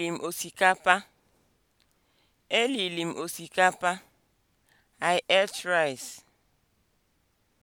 Elili m osikapa. Elili m osikapa. I ate rice.